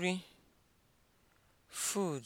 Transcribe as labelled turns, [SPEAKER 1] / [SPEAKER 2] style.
[SPEAKER 1] nri food